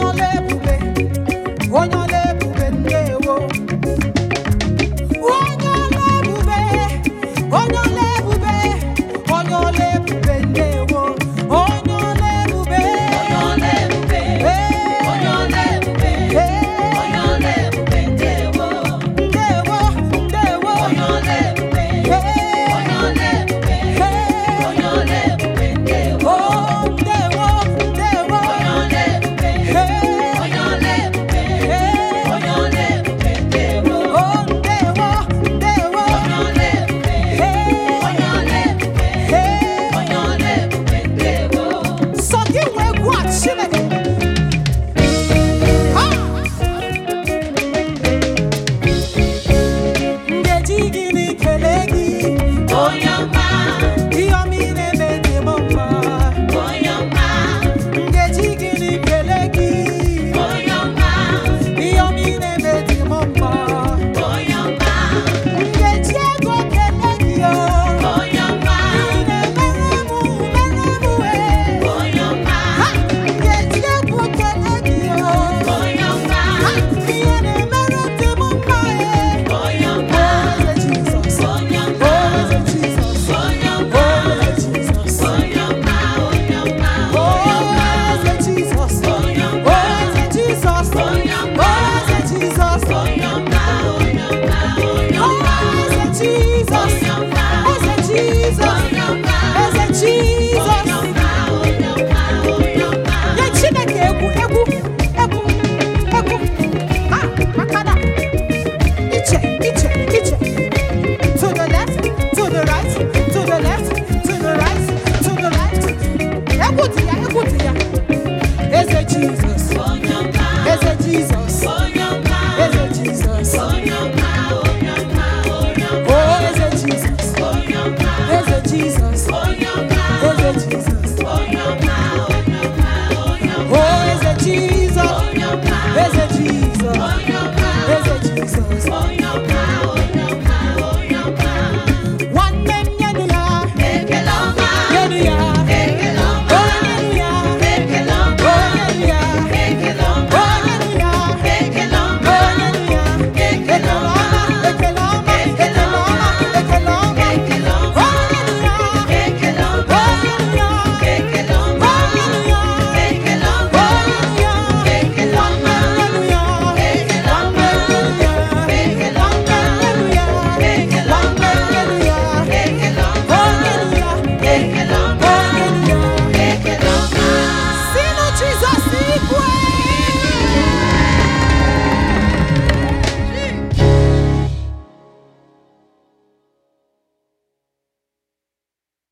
onye ole onye Jesus.